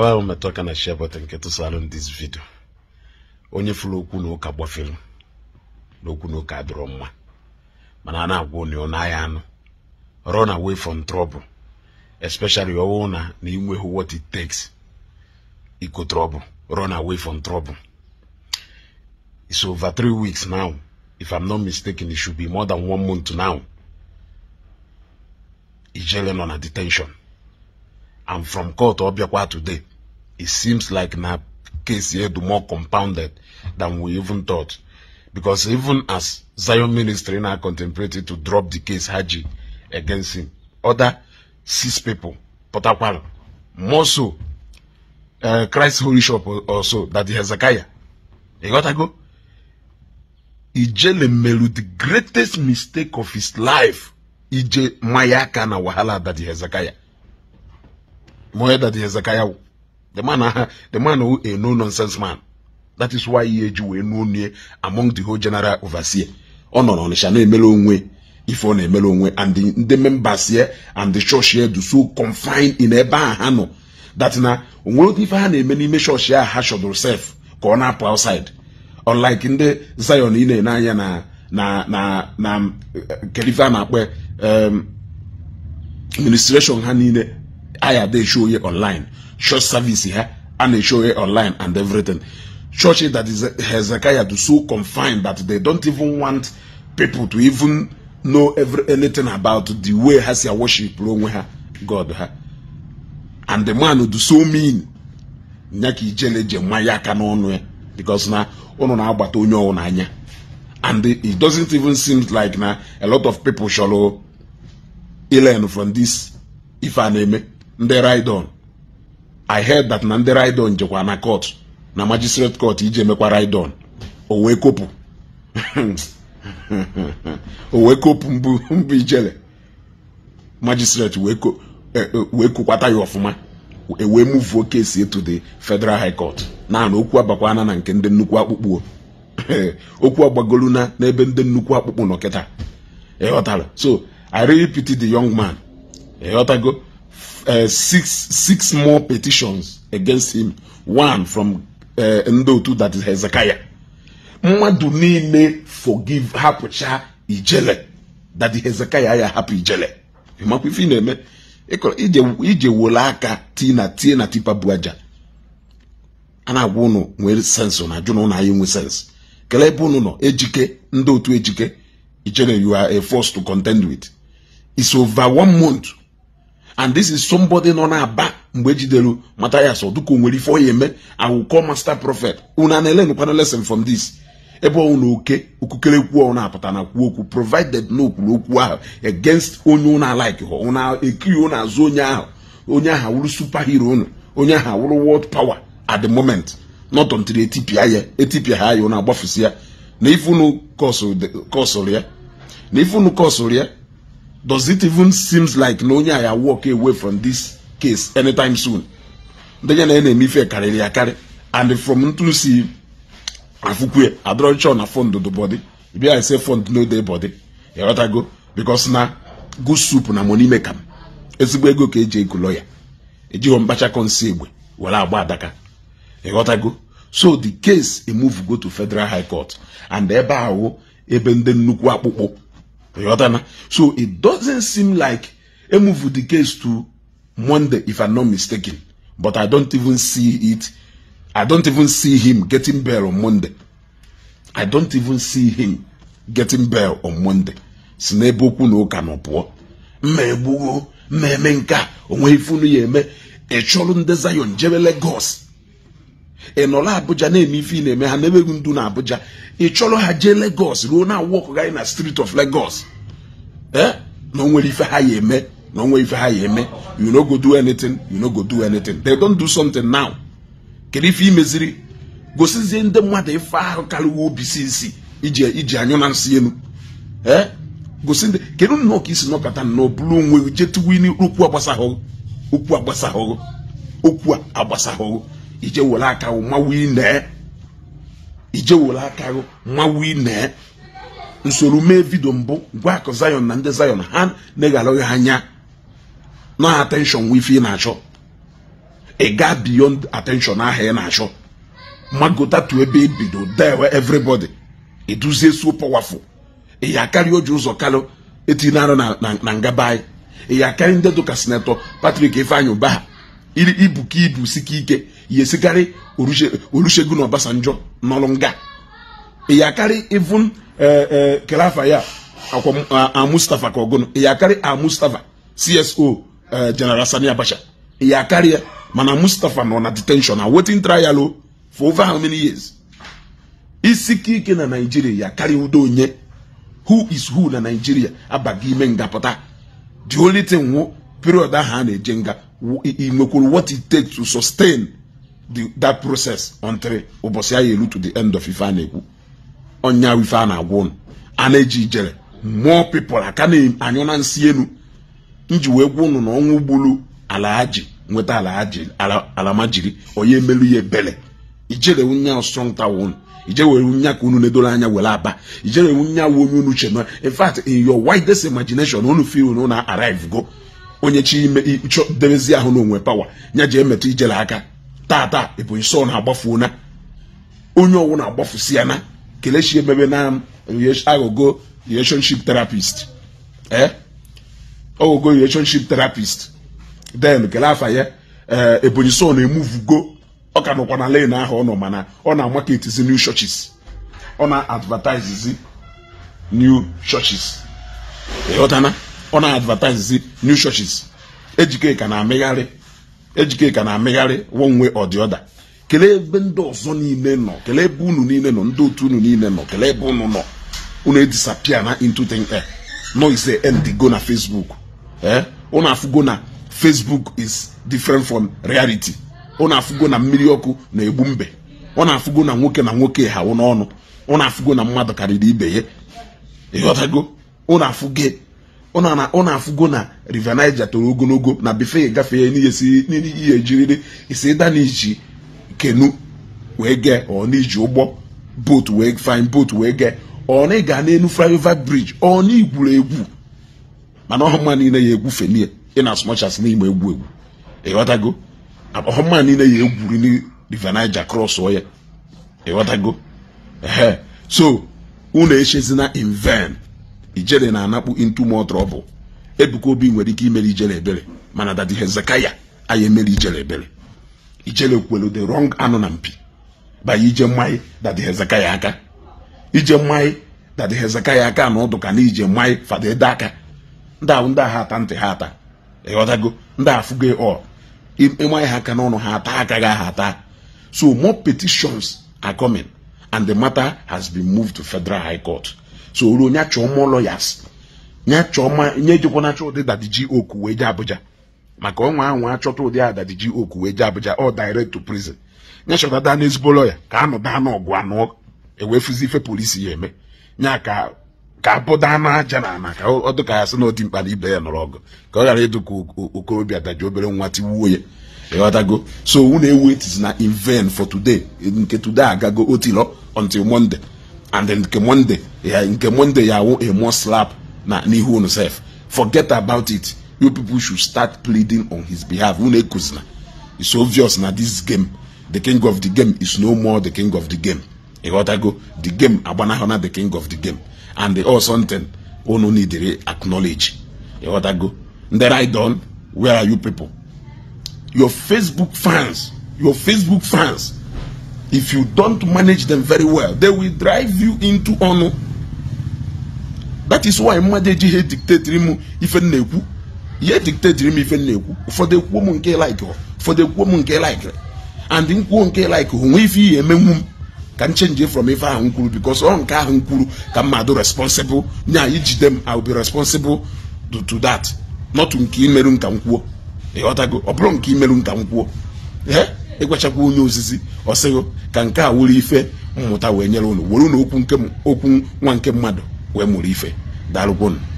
Mgbawa ahụ metụ aka na share nke tụsalụ m this video onye fụrụ okwu na ụka gbafere n'okwu na ụka adịrọ mma mana a na-agwa onye ọ naghị anụ run away from trouble especially ọwụ na na inweghị what it takes iko trouble run away from trouble it's over three weeks now if I'm not mistaken it should be more than one month now Ijele nọ na detention and from court ọ bịakwa today it seems like na case here the more compounded than we even thought because even as zion ministry now contemplated to drop the case haji against him other six people potakwal more so uh, christ holy shop also that the hezekiah you got ago, ijele melu the greatest mistake of his life ije mayaka na wahala that the hezekiah more that the hezekiah The man, uh, the who a no nonsense man. That is why he eji wee nuo nue among the whole general overseer. Ọ nọ n'Ọnịsha na-emere onwe ife ọ na-emere onwe and ndị members here and the church here do so confined in ebe a ha nọ that na onwere ife ha na-eme n'ime church ya ha shọdụrụ sef ka ọ na-apụ outside unlike ndị Zion ị na anya na na na na eh, kelife um, akpọ ha niile taya dey show onye online church service ha a na show onye online and everything church that is Hezekiah do so confined that they don't even want people to even know every anything about the way ha si worship onwe ha God ha and the man do so mean nya ka ijele je nwa ya aka n'ọnụ ya eh? because na ụnụ na-agbata onye ọwụ n'anya and it doesn't even seem like na a lot of people chọrọ learn from this ife ndị raidon i heard that na ndị raidon jekwa na court na magistrate court iji emekwa raidon o wee kopụ o wee mbụ ijele magistrate wee kokwata e, e, ya ọfụma ewee muvuo kesi etu the federal high court naanị okwu abakwana na nke ndị nnukwu akpụkpụ okwu agbagolu na n'ebe ndị nnukwu akpụkpụ nọ kịta so i repeat the young man ịghọtago uh, six six more petitions against him one from uh, Ndotu that is Hezekiah mmadụ niile forgive hapụcha ijele that Hezekiah ya hapụ ijele ịmakwa ife ị na-eme ije wole aka tii na tie na tipa bu aja a na-agwa ụnụ nwere sensị na ajụ na ụnụ anyị nwe sensị kelee ebe ụnụ nọ ejike ndị otu ejike ijele you are force to contend with is over one month and this is somebody nọ na-aba mgbe ejidere mata ya sọ dịka o nwere ife ọya eme awụkọ master prophet unu a na-elenkwana lesson from this ebe ọnwụ na oke okukerekwu ọ na-apụta na kwuo okwu provided na okwuru okwu ahụ against onye ụnụ alaiki ha ụna ekiri ụnụ azụ onye ahụ onye ahụ awụrụ hero ụnụ onye ahụ awụrụ world power at the moment not until etipia ya etipia ha ya ụnụ agbafusi ya na ifunu kọsụrụ ya na ifunu kọsụrụ ya does it even seems like na onye aya walk away from this case anytime soon ndị ya na ya na-eme ife karịrị akarị and from ntu si afụkwe adọrọchọ na fond the body I say fond no dey body ịghọtago because na good soup na money maker ezigbo ego ka eji ekulo ya ejighọ mkpachakọ nsị egbe were agba adaka ịghọtago so the case go to federal high court and ebe ahụ ebe ndị nnukwu akpụkpọ So it doesn't seem like a move the case to Monday, if I'm not mistaken. But I don't even see it. I don't even see him getting bail on Monday. I don't even see him getting bail on Monday. si na ebe okwu na ụka nọ pụọ mma eme nke a onwe ifunu ya eme ịchụrụ e nde Zion jebe Lagos ị nọla Abuja na-eme ife ị na-eme ha na-emeghị ndu na Abuja ị chọrọ ha jee Lagos ruo na wọkụ gị na street of Lagos ee na onwere ife ha ya eme na onwere ife ha ya eme you no go do anything you no go do anything they don't do something now kedu ife imeziri gosizie ndị mmadụ ife ahụ karịwa obi si isi iji iji anyụ na nsị elu ee gosi ndị kedu nnọọ ka isi nọkọta na ọbụrụ onwe jetuwin okwu agbasahụghụ okwu agbasahụghụ okwu agbasahụghụ ije were aka gị mawu ine ije were aka gị mawu ine nsoro mee vidio mbụ gwa akụ Zion na ndị Zion ha na-eha negharụghị anya na attention nwe ị na-achọ ị gaa beyond attention ahịa ị na-achọ magote tu ebe ebido dewe everybody eduzie so powerful ị oji ụzọ kalụ etinye na ngaba anyị e ị ya ndị dụka senetọ patrik Ifeanyi Ụbaha ibuka ibu sike ike ya esikarị Olusegun Obasanjo nọrụ nga ya karị even eh, eh, kelafa ya akwa eyakari ka ya a Mustafa CSO eh, General Sani Abacha ya mana Mustafa nọ na detention na waiting trial for over how many years isi ike na Nigeria ya udo onye who is who na Nigeria abaghị ime ngapụta the only thing period ahụ a e na-eje nga i nwekwuru what it takes to sustain the that process until ụbọchị ya elu to the end of ife a na-ekwu ọnya ife a na-agwa ụnụ a na-eji ijere mmụọ aka na-anyụ na nsị elu nji wee gwa ụnụ na ọnwụ gburu ala aji nweta ala alamajiri onye emelu ye ebele ijere nya strong tower ụnụ ije were nya ka unu na anya were aba ijere nya wụ onye unu chere in fact in your widest imagination unu feel na na arrive go onye chi ime debezie ahụ onwe power nya je emetụ ijere aka tata ebonyi so na-agbafu na onye ọwụ na-agbafusi ya na kelechi emebe na eh, aghọgo relationship therapist ee eh, ọghọgo relationship therapist then kele afa ya ebonyi eh, so na-emuvugo ọ ka nọkwa na lane ahụ ọ nọ mana ọ na-amaketizi new churches ọ na-advertise new churches ịghọtana ọ na-advertise new churches ejike ka na-amịgharị ejikeka na-amịgharị one way or ebe ndị ọzọ niile nọ kelee ebe unu niile nọ ndị otu unu niile nọ kele ebe unu nọ unu edisapia na into thin air eh, no end go na facebook ee eh, unu afụgo na facebook is different from reality unu afụgo na mmiri ọkụ na-egbu mbe ọ na-afụgo na nwoke na nwoke ha n'ọnụ ọ na-afụgo na mmadụ karịrị ibe ya ịghọtago ụnụ na-afụgo ụnụ afụgo na river Niger toro ogologo na ihe gafee n'ihe jiriri isi n'iji kenu wee gee ọ n'iji ụgbọ boat wee fine boat wee gee ọ na ịga n'elu flyover bridge ọ na igwuru egwu mana ọhụma niile ya egwu fenie ị na asụmachas n'ime egwu egwu ịghọtago ọhụma niile ya egwuri river Niger cross ọ ya ịghọtago ehe so unu echezina in ijele na-anakpu into more Ebuka Obi nwere ike imere ijele ebere mana dadi Hezekiah anyị emere ijele ebere ijele kwelu the rong anụ na mpi banye ije mmanya dadi aka ije mmanyị dadi aka na ọdụ na ije mmanyị fada ede aka ndị ahụ ndị agha ata ntị ha ata ịghọtago ndị afụgo ọ ịmanye ha aka n'ọnụ ha ata aka gị ha ata so more petitions are coming and the matter has been moved to federal high court soro onye achọ ụmụ lọyas chọọ chọma nye jikwa na ụdị dadiji oku wee jee Abuja maka ọnwa ahụ achọta ụdị ji oku wee jee Abuja ọ direct to prison nye chọtata na ezigbo lọya ka anụ daa n'ọgụ anụ e fụzi ife polisi ya eme nya ka ka abụda daa aja na ana ka ọ dịka ya sị na odi mkpa na ibe ya nọrọ ọgụ ka ọ ghara ịdụ ka okorobịa daji obere nwa tiwuo ya ịghọtago so unu ewu etizi na in for today nke today agago otilo until Monday and then nke monday ya nke monday ya wụ a more slap na n'ihu unu sef forget about it you people should start pleading on his behalf unu ekuzina it's obvious na this game the king of the game is no more the king of the game ịghọtago the game agbanahụ na the king of the game and the all something unu needere acknowledge ịghọtago ndị right done. where are you people your facebook fans your facebook fans if you don't manage them very well they will drive you into ọnụ that is why mmadụ eji ihe m ife na-ekwu ihe dictatiri m ife na-ekwu ụfọdụ ekwuo m nke like ụfọdụ ekwuo m nke like and nkwuo nke like onwe ife ihe emenwu m ka m chenji from ife ahụ nkwuru bikos because ọ nke ahụ m ka mmadụ responsible nya ijide m I will be responsible to that not nke imeru nka m ọ bụrụ nke imeru nka m ịkwachakwa onye ozizi ọsịghụ ka nke a wụrụ ife mmụta wee nyere unu were unu okwu nwa nke mmadụ wee mụrụ ife daalụkwa